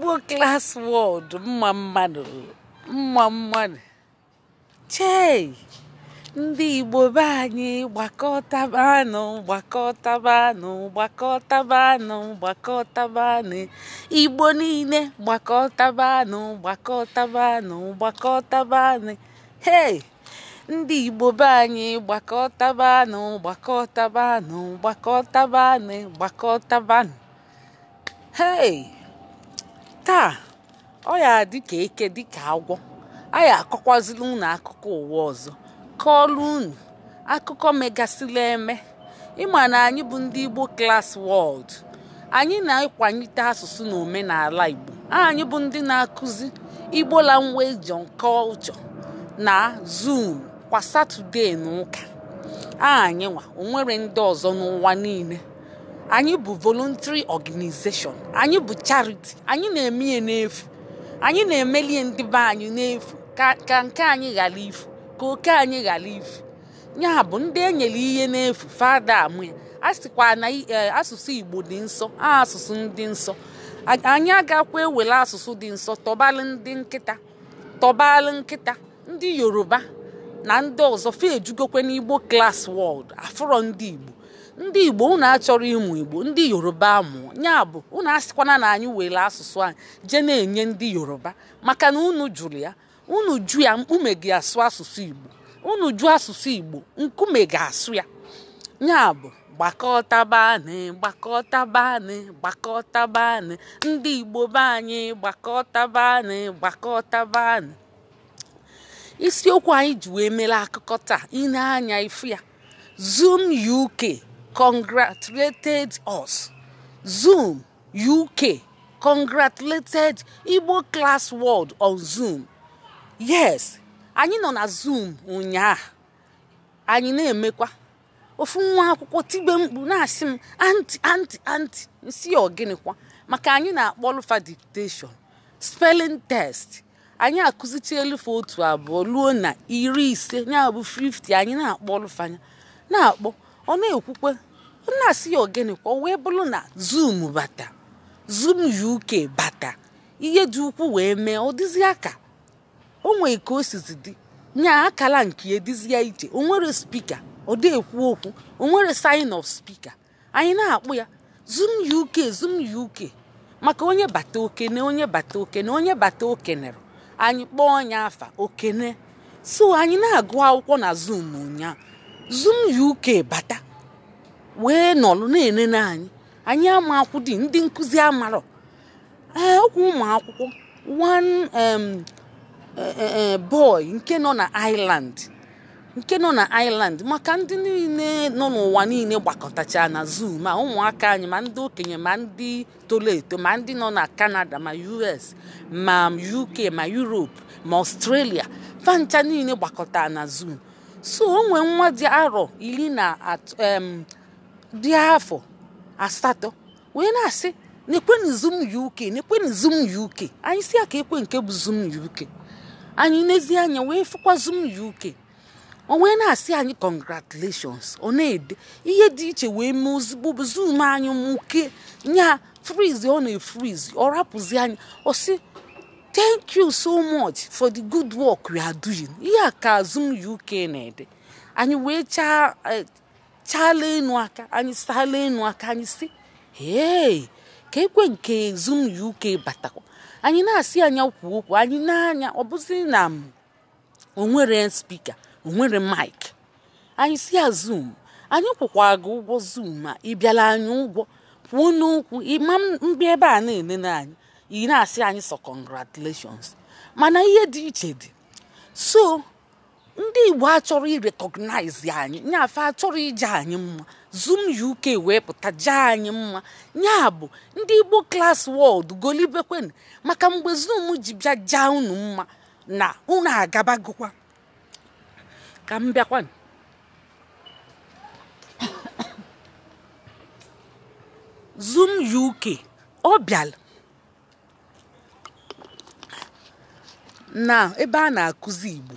igbo klas wọd mma mmadụ mma mmadụ chei ndị igbo be anyị gbakọtabanụ gbakọtabanụ gbakọtabanụ gbakọtabanụ igbo niile gbakọtabanụ gbakọtabanụ gbakọtabanụ hei ndị igbo be anyị gbakọtabanụ gbakọtabanụ gbakọtabanụ gbakọtabanụ hei taa ọ ya dịka eke dịka agwọ anyị akọkwazila unu akụkọ ụwa ọzọ kọọlụ unu akụkọ megasịla eme ịma na anyị bụ ndị Igbo klas wọld anyị na-akwanyite asụsụ na omenala Igbo anyị bụ ndị na-akụzi Igbo language kọlchọ na Zoom kwa Satọde na ụka anyị nwa onwere ndị ọzọ n'ụwa niile anyị bụ voluntary organization anyị bụ charity anyị na-eme n'efu anyị na-emelie ndị be anyị n'efu ka nke anyị ghara ifu ka oke anyị ghara ifu ya bụ ndị enyere ihe n'efu fada amụ ya a sịkwa na e, asụsụ igbo dị nsọ asụsụ ndị nsọ anyị agakwa ewere asụsụ dị nsọ tọbalị ndị nkịta tọbalị nkịta ndị yoruba na ndị ọzọ fa n'igbo klas wọld afụrọ ndị igbo ndị igbo unu achọrọ ịmụ igbo ndị yoruba mụ ya bụ unu asịkwana na anyị were asụsụ anyị jee na-enye ndị yoruba maka na unu jụrụ ya unu jụ ya mkpume gị asụ asụsụ igbo unu ju asụsụ igbo nkume ga-asụ ya ya bụ bani! Gbakọta bani! ndị igbo be anyị Gbakọta bani! isiokwu anyị ji wee mere akụkọ taa ine anya ifu ya zoom uk congratulated us. Zoom UK congratulated Igbo class world on Zoom. Yes, anyị nọ na Zoom ụnyaahụ anyị na-emekwa ofu nwa akwụkwọ tigbe mkpu na-asị m anti anti anti nsi ọgịnịkwa maka anyị na-akpọlụfa akpọ dictation spelling test anyị elufe otu abụọ ruo na iri ise ya 50 anyị na-akpọlụfanya na-akpọ ọ na-ekwukwe ọ na-asị ya ogene kwa wee bụrụ na zoom bata zum uk bata ihe dị ukwuu wee mee ọ dịzịa aka. o nwee ka o sizi dị nya akala nke edizia ije, o nwere spika ọ dị ekwu okwu o nwere sign of spika anyị na-akpụ ya zum uk zum uk maka onye bata okene onye bata okene onye bata okenere anyị kpọọ onye afa okene so anyị na-agụ akwụkwọ na zoom ụnyaahụ zoom uk bata wee nọlụ na-enene anyị anyị ama dị ndị nkụzi amarọ ee okwu ụmụ akwụkwọ one um, e, e, e, boy nke nọ na iland nke nọ na Ireland maka ndị niile nọ n'ụwa niile gbakọtacha na zoom a ụmụaka anyị ma ndị okenye ma ndị toro eto ma ndị nọ na Canada ma US ma UK ma Europe ma Australia fancha niile gbakọta na zoom. so onwe nwa dị arọ iri na dị afọ asatọ wee na-asị na zoom uk na zum uk anyị si ya ka ekwe nke bụ zum uk anyị nezie anya wee fụkwa zum uk o wee na-asị anyị congratulations ọ na-ede ihe dị iche wee mee ozugbo bụ zum anyị mụke nya frizi ọ na efriz ọ rapụzi anyị ọ sị thank you so much for the good work you are doing ihe a ka Zoom UK na-ede anyị wee e, chaala enu aka anyị saala enu aka anyị si hey ka ekwe nke Zoom UK batakwa anyị na-asị anya kwu okwu anyị na-anya ọ bụzi na onwere spika onwere mik anyị si ya ah, zoom anyị kwụkwa gị ụgwọ zoom ma ị bịala anyị ụgwọ kwuo n'okwu ịma mgbe ebe a na-enene anyị ị na-asị anyị sọ congratulations mana ihe dị iche dị so ndị igbo achọrọ irekọgnaizi anyị nyafe achọrọ ije anyị mma zoom uk wee pụta jee anyị mma nya bụ ndị igbo klas wọld golibekwen maka mgbe zoom ji bịa jaa unu mma na unu agabagokwa ka m bịakwa zoom uk ọ bịala na ebe a na-akụzi igbo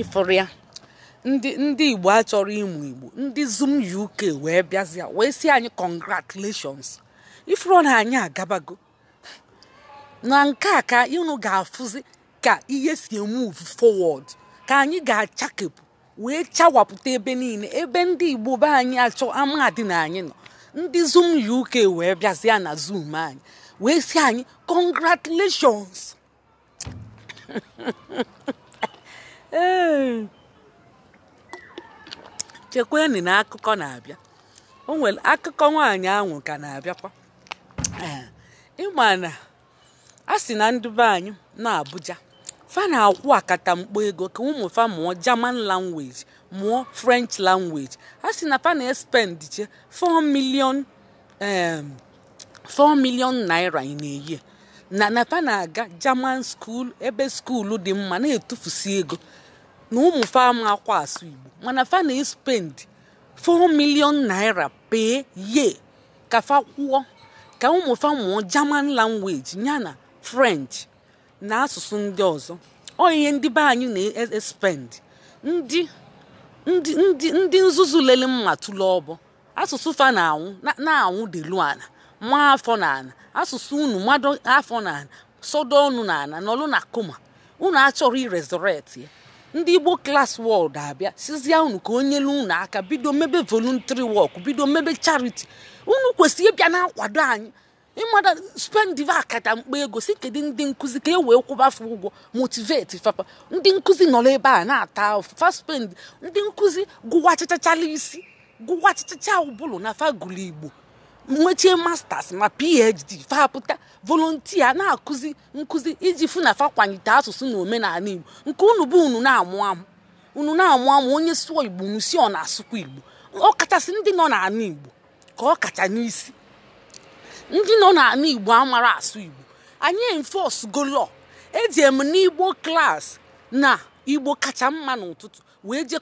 ịfụrụ ya ndị ndị igbo achọrọ ịmụ igbo ndị zoom uk wee bịazịa wee si anyị congratulations ifuru na anyị agabago na nke a ka ịnụ ga-afụzi ka ihe si emove forward ka anyị ga-achakepụ wee chawapụta ebe niile ebe ndị igbo be anyị achọ amadị na anyị nọ ndị zoom uk wee bịazịa na zoom anyị wee si anyị congratulations ee na akụkọ na-abịa o nwere akụkọ nwaanyị ahụ ka na-abịakwa ịma na a sị na ndị be anyị na Abuja fa na-akwụ akata mkpo ego ka ụmụ fa mụọ German language mụọ French language a sị na fa na-espend che 4 million 4 ehm, million naira ị na eyie na nata na-aga german school ebe skuulu dị mma na-etufusi ego na ụmụ fama akwa asụ igbo mana fa na spend 4 million naira pee ye ka fa kwụọ ka ụmụ fa mụọ german language yana french na asụsụ ndị ọzọ ọ ihe ndị anyị na-espend ndị ndị ndị nzuzu lele mma tụlụ ọbọ asụsụ fa na-anwụ na-anwụ delu ala nwa afọ na asụsụ unu mmadụ afọ na ana ọnụ na nọlụ na koma unu achọrọ iresurrect ya ndị igbo klas wọld abịa sizie unu ka onye lu unu aka bido mebe voluntary work bido mebe chariti unu kwesịrị ịbịa na-akwado anyị ịmada spendiva akata mkpa ego si kedu ndị nkụzi ka e wee kwụbafe ụgwọ motiveti fapa ndị nkụzi nọrọ ebe a na-ata fa faspend ndị nkụzi gụwa chachachala isi gụwa chachacha ụbụlụ na fagụlụ igbo nwechie masters ma phd fapụta volontia na-akụzi nkụzi iji fụ na fakwanyite asụsụ na omenala igbo nke unu bụ unu na-amụ amụ unu na-amụ amụ onye sụọ igbo unu ọ na-asụkwa igbo kachasị ndị nọ n'ala igbo ka ọ kacha n'isi ndị nọ n'ala igbo amara asụ igbo anyị enforce go law eji m n'igbo klas na igbo kacha mma n'ụtụtụ wee jee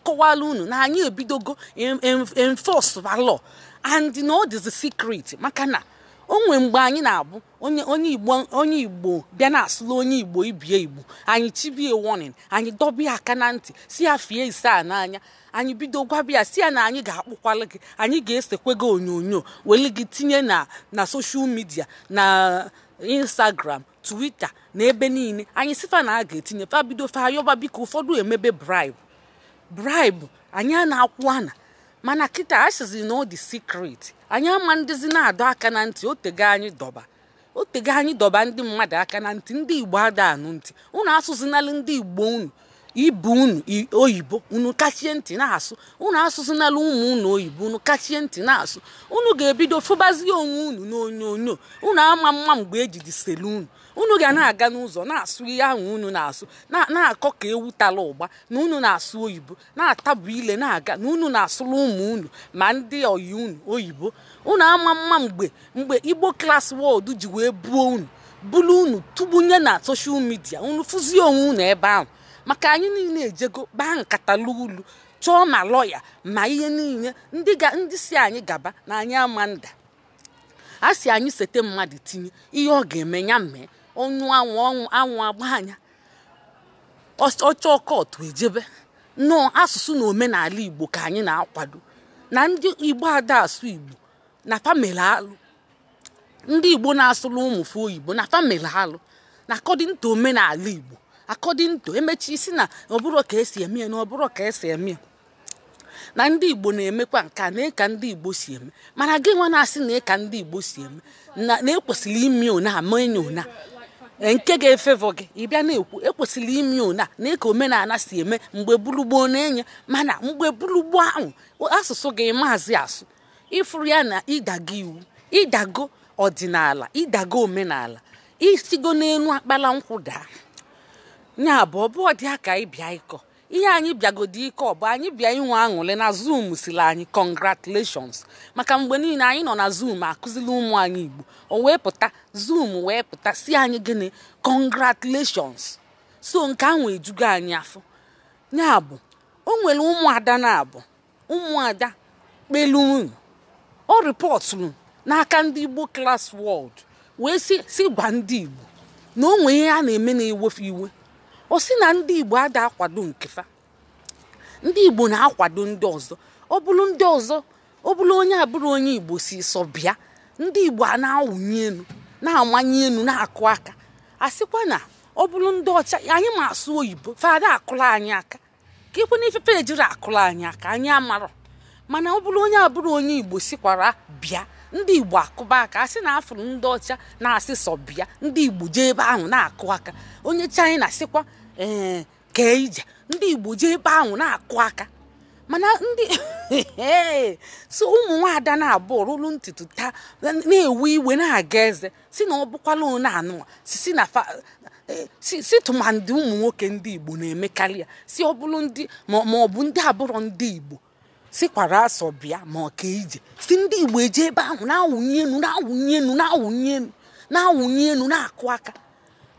unu na anyị ebidogo enforce law and na ọ dịzi secret maka na o nwere mgbe anyị na-abụ onye igbo bịa na-asụla onye igbo ibie igbo anyị chibie warning anyị dọbịa aka na ntị si ya fie ise a n'anya anyị bido gwabịa si ya na anyị ga-akpụkwala gị anyị ga-esekwe gị onyonyo weli gị tinye na na soshal midia na instagram twitter na ebe niile anyị sifa na a ga-etinye fa bido fa biko ụfọdụ emebe bribe bribe anyị a na-akwụ ana mana kịta asịzi na ọ dị sikret anyị ama ndịzi na-adọ aka na ntị otego anyị dọba otego anyị dọba ndị mmadụ aka na ntị ndị igbo ada anụ ntị unu asụzinalụ ndị igbo unu ibu unu oyibo unu kachie ntị na-asụ unu asụzinalụ ụmụ unu oyibo unu kachie ntị na-asụ unu ga-ebido fụbazie onwe unu n'onyonyo unu ama mma mgbe ejiji selu unu unu ga na-aga n'ụzọ na-asụ ihe ahụ unu na-asụ na-akọ ka ewu tara ụgba na unu na-asụ oyibo na atabu ile na-aga na unu na-asụrụ ụmụ unu ma ndị oyi unu oyibo unu ama mma mgbe mgbe igbo klas wọdụ ji wee buo unu bulu unu tụbunye na soshal midia unu fụzie onwe unu ebe ahụ maka anyị niile ejego kpaa nkata ulu chọọ ma lọya ma ihe niile ndị ndị si anyị gaba na anyị ama nda a si anyị sete mmadụ tinye ihe ọ ga-eme ya mee onu anwụ anwụ agbanya ọcha ọkọtụ ejebe nnọọ asụsụ na omenala igbo ka anyị na-akwado na ndị igbo ada asụ igbo na famili alụ ndị igbo na-asụrụ ụmụfe oyibo na famili alụ na akọdịn omenala igbo akọdịn emechi isi na ọbụrụ ka esi eme ya na ọbụrụ ka esi eme ya na ndị igbo na-emekwa nke a na-eka ndị igbo si eme mana gị nwa na-asị na ịka ndị igbo si eme na ekwesịrị ime ona ama enyo ona nke ga-efevọ gị ịbịa na-ekwu ekwesịrị ime ụna na ka omenala si eme mgbe gburugburu na-enye mana mgbe gburugburu ahụ asụsụ gị maazị asụ ịfụrụ ya na ịdago iwu ịdago ọdịnala ịdago omenala isigo n'elu akpala nkwụ daa ya bụ ọbụ ịbịa ịkọ ihe anyị bịagodi ike ọ bụ anyị bịa inwe aṅụrị na zoom siri anyị congratulations maka mgbe niile anyị nọ na zoom akụzili ụmụ anyị igbo o wee pụta zoom wee pụta si anyị gịnị congratulations so nke ahụ ejugo anyị afọ ya bụ o nwere ụmụada na-abụ ụmụada kpelu ọ rịpọtụrụ n'aka ndị igbo klas world wee si gwa ndị igbo na o nwere ihe a na-eme na-ewefe iwe osina si na ndị igbo ada akwado nkefa ndị igbo na-akwado ndị ọzọ ọ bụrụ ndị ọzọ onye abụrụ onye igbo si sọ bịa ndị igbo a na-awụnye elu na-amanye elu na-akụ aka a sịkwa na ọ bụrụ ndị ọcha anyị ma asụ oyibo fada akụla anyị aka ka ikwe n'ifefe ejiri akụla anyị aka anyị amarọ mana ọ bụrụ onye abụrụ onye igbo sikwara bịa ndị igbo akụba aka asị na afụrụ ndị ọcha na-asị sọ bịa ndị igbo jee ebe ahụ na-akụ aka onye china sikwa ee kee ije ndị igbo jee ebe ahụ na-akụ aka mana ndị so ụmụ nwaada na-abụ rụrụ ntutu taa na ewu iwe na-aga eze si na ọ bụkwala one anụwa si na e, si tụmadị ụmụ nwoke ndị igbo na-emekarị ya si ọ bụrụ ndị ma ọ bụ ndị abụrọ ndị igbo sikwara asọ bịa ma ọ ka ije si ndị igbo eje ebe ahụ na-awụnye enu na-awụnye enu na-awụnye enu na-awụnye na-akụ aka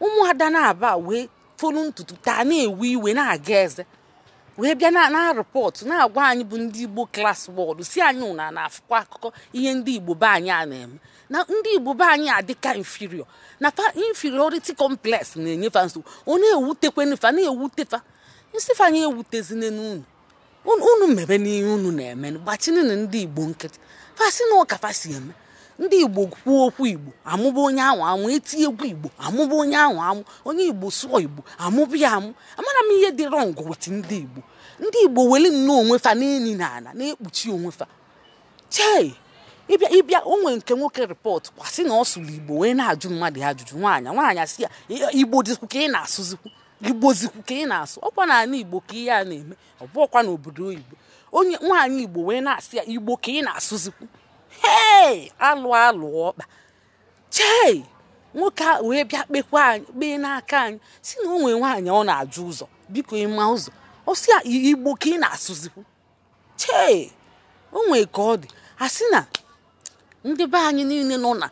ụmụada na-aba wee fonu ntutu taa na-ewe iwe na-aga eze wee bịa na rịpọtụ na-agwa anyị bụ ndị igbo klas wọdụ si anyị ụna na-afụkwa akụkọ ihe ndị igbo be anyị a na-eme na ndị igbo be anyị adịka infirio na fa inferiority complex na-enyefa nsogbu ọ na-ewutekwenufa na-ewutefa nsifanye ewutezine n'unu unu mebe n'ihe unu na-eme gbachininu ndị igbo nkịtị fasi na ụka fasi eme ndị igbo kwuo okwu igbo amụba onye ahụ amụ egwu igbo amụba onye ahụ amụ onye igbo sụọ igbo amụba ya amụ amara m ihe dị rọngụ wet ndị igbo ndị igbo weli nnọọ onwe fa n'eni na ala na-ekpuchi onwe fa ịbịa ịbịa onwe nke nwoke rịpọt kwasị na ọ sụrụ igbo wee na-ajụ mmadụ ajụjụ nwaanyị nwaanyị asị ya igbo dịkwu ka ị na-asụzikwu igbozikwu ka ị na-asụ ọkwa na ala igbo ka ihe a na-eme ọ ọkwa n'obodo oyibo onye nwaanyị igbo wee na-asị ya igbo ka ị na-asụzikwu hei alụ alụ ọkpa chei nwoke a wee bịa kpekwa anyị kpee n'aka anyị si na onwe nwaanyị ọ na-ajụ ụzọ biko ịma ụzọ ọ ah, ka ị na-asụzikwu chee onwe ka ọ dị a si na ndị be anyị niile nọ na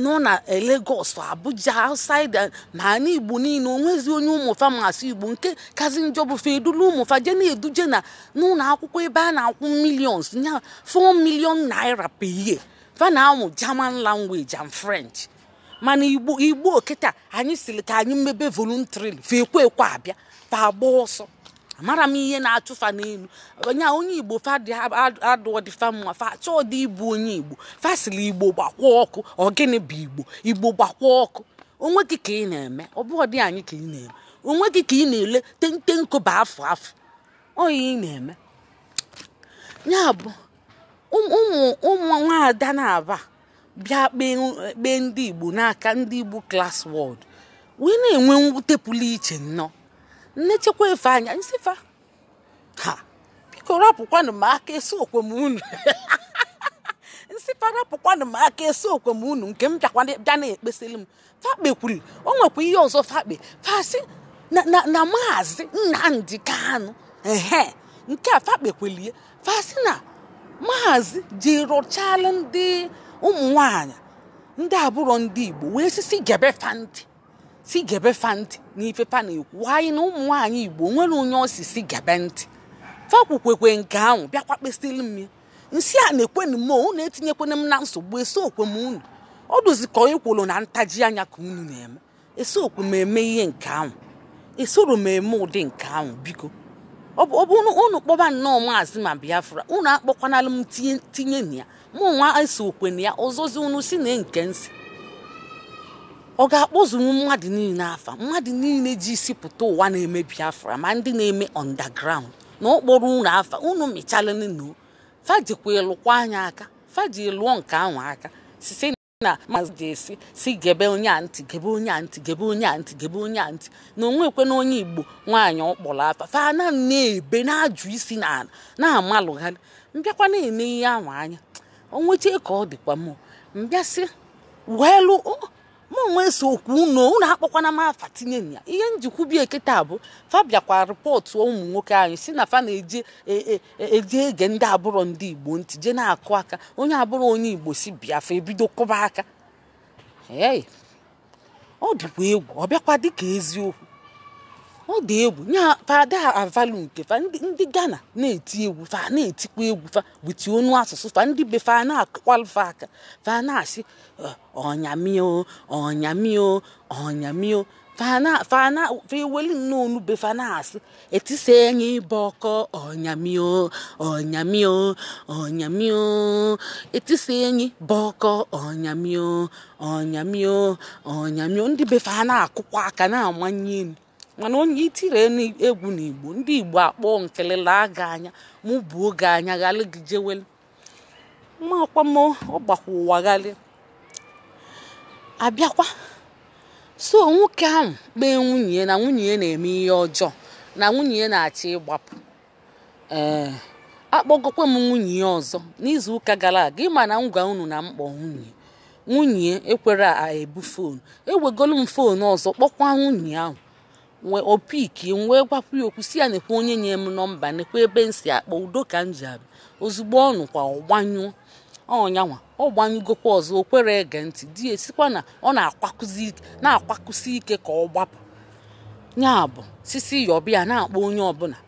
nọ na Lagos Abuja outside eh, na ana Igbo niile onwezi onye ụmụfa masị Igbo nke kazi njọ bụ edula ụmụfa je na-eduje na n'ụlọ akwụkwọ ebe a na-akwụ milions ya 4 million naira per year fa na-amụ German language and French mana Igbo Igbo kịta anyị siri ka anyị mebe voluntary fa ekwe ekwe abịa fa agba ọsọ amara m ihe na-achụfa n'elu onye onye igbo fadadụdịfa mma dị ịbụ onye igbo fasili igbo gbakwa ọkụ ọgịnị bụ igbo igbo gbakwa ọkụ onwe gị ka ị na-eme ọ dị anyị ka ị na-eme onwe gị ka ị na-ele tente afọ afọ afụ onye ị na-eme ya bụ ụmụ nwaada na-aba bịa kpee ndị igbo n'aka ndị igbo klas wọd wee na-enwe mwute pụlụ iche nnọọ nnechekwa efe anya nsifa ha biko rapụkwanụ m aka esi m unu nsifa rapụkwanụ m aka esi m unu nke m bịa na-ekpesịrị m fakpe kwuru o nwekwa ihe ọzọ fakpe fasi na maazị Nnamdi Kanu ehe nke a fakpe kwelie fasị na maazị ji rụchalụ ndị ụmụ nwanyị ndị abụrụ ndị Igbo wee sisi gebe fanti. si gebe fa ntị n'ife fa na-ekwu anyị na ụmụ nwaanyị igbo nwere onye osi si gebe ntị fakwukwekwe nke ahụ bịakwa kpesili m ya nsị a na-ekwenu m unu etinyekwana m na nsogbu esiokwe m unu ọ dụzikọ ịkwụrụ na ntaji anya ka unu na-eme esiokwe m eme ihe nke ahụ esoro m eme ụdị nke ahụ biko ọ bụ unu kpọba nnọọ maazị ma biafra unu akpọkwanala m tinye na ya mụ nwa esokwe na ya ọzọzi unu si na nke nsị ọ ga akpọzuru mmadụ niile afa mmadụ niile ji isi pụta ụwa na-emebi afra ma ndị na-eme underground na okporo ụlọ afa unu mịchalanu fajikwa ịlụkwa anya aka faji lụọ nke ahụ aka site na maazị ga-esi si gebe onye ntị gebe onye ntị gebe onye antị gebe onye antị na onwekwe na onye igbo nwaanyị ọkpọrọ afa fana na-ebe na-ajụ isi n'ala na-amalụgharị mbịakwa na eme ihe ahụ anya onwechee ka ọ dịkwa m mbịasị welụ m nwe so okwu unu unu akpọkwana m afa tinye ya ihe bi kịta bụ fa bịakwa rịpọtụ ụmụ nwoke anyị si na fa na e, e, e, eji ege ndị abụrọ ndị igbo ntị je na-akụ aka onye abụrụ onye igbo si biafra ebido kọba aka ọ dịkwa egwu ọ bịakwa dịka eziokwu ọ dị egwu nya fada avalu nke fa ndị Ghana na-eti egwu fa na-etikwa egwu fa witi onu asụsụ fa ndị be fa na-akwalufa aka fa na-asị eh, ọnyamio ọnyamio ọnyamio feweli nnọọ onube fa na-asị etisa enye ibe ọkọ ọnyamio ọnyamio ọnyamio etisa enyi bụ ọkọ ọnyamio ọnyamio ọnyamio ndị be fa na-akụkwa aka na-amanye elu mana onye itiri egwu n'igbo ndị igbo akpọọ nkelelaa gị anya mụ bụ oge anya ghalị gị jeweli makwamo ọgbakwa ụwa ghalị abịakwa so nwoke ahụ kpee nwunye na nwunye ya na-eme ihe ọjọọ na nwunye ya na-achọ ịgbapụ ee akpọgokwa m nwunye ya ọzọ n'izu ụka gara aga ịma na ngwa unu na mkpọ nwunye nwunye ekwere ebu foonu ewegolu m foonu ọzọ kpọkwa nwunye ahụ wee opiki m wee gwapụ ya okwu si ya nekwa onye nye m nọmba nekwa ebe m si akpọ udo ka m ji abịa ozugbo ọnụ kwa ọgbanyụ ọnyanwa ọ gbanyụgokwa ọzọ o kwere ege ntị di ya esikwa na ọ na-akwakusi ike ka ọ gbapụ Nya bụ sisi yọbịa na-akpọ onye ọbụla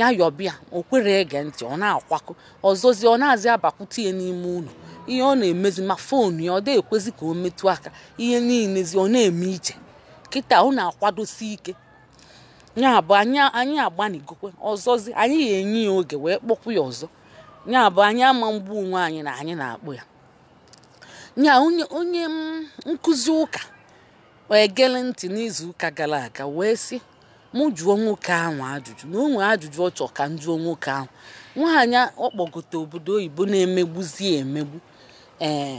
ya yọbịa o kwere ege ntị ọ na akwaku ọzọzi ọ na-azị abakwute ya n'ime ụlọ ihe ọ na-emezi ma foonu ya ọ dị ekwezi ka o metụ aka ihe niilezi ọ na-eme iche kịta ọ na-akwadosi ike ya bụ anyị agbanigokwe ọzọzi anyị ga-enye ya oge wee kpọkwu ya ọzọ ya bụ anyị ama mgbu onwe anyị na anyị na-akpụ ya nya onye mm, nkụzi ụka egele ntị n'izuụka gara aga wee sị mụ jụọ nwoke ahụ ajụjụ na onwe ajụjụ ọ chọ ka m jụọ nwoke ahụ nwaanyị ọkpọgote obodo oyibo na-emegbuzi emegbu ee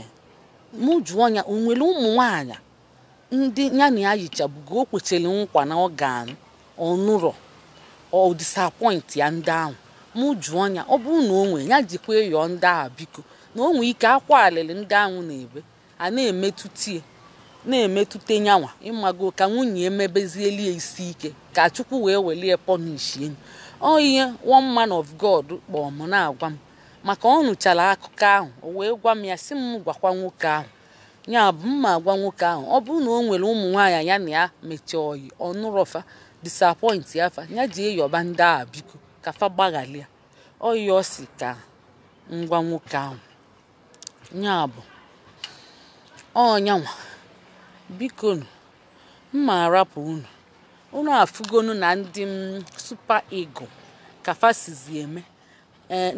mụ jụọ ya o nwere ụmụ nwaanyị ndị ya na ya yichabugo o kwechara nkwa na ọ ga-anụ ọnụrọ ọ ya ndị ahụ mụ jụọ anya ọ bụrụ na o nwee ya jikwa ịyọ ndị ahụ biko na o nwee ike akwa alịlị ndị ahụ na-ebe a na-emetụta na-emetụta nyanwa ịmago ka nwunye emebezieli isi ike ka chukwu wee welie pọnishi enyi ọ ihe one man of god kpọọ m na-agwa m maka ọ nụchara akụkọ ahụ o wee gwa m ya si m gwakwa nwoke ahụ ya bụ mma agwa nwoke ahụ ọ bụrụ na o nwere ụmụ nwaanyị ya na ya mechaa oyi ọnụrọfa disappoint ya fa ji jee yọba ndị a biko kafa fa ọ ọyọ si ka ngwa nwoke ahụ nya bụ ọnyanwa biko nu mma arapụ unu unu afụgonu na ndị mm, Super ego ka fa eme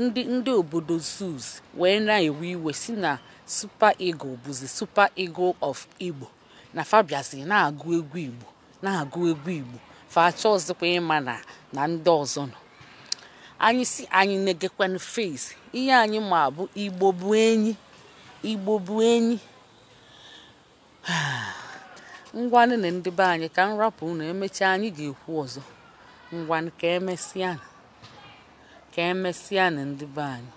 ndị e, ndị obodo Zus wee na-ewe iwe si na Super ego bụzi Super ego of Igbo na fa na-agụ egwu Igbo na-agụ egwu Igbo facha ọzọkwa ịma na ndị ọzọ nọ anyị si anyị na-egekwanụ ihe anyị ma bụ igbo enyi igbo enyi ngwanụ na ndị anyị ka nwapụ na unu emechaa anyị ga-ekwu ọzọ ngwanụ ka emesịa ka emesịa na ndị be anyị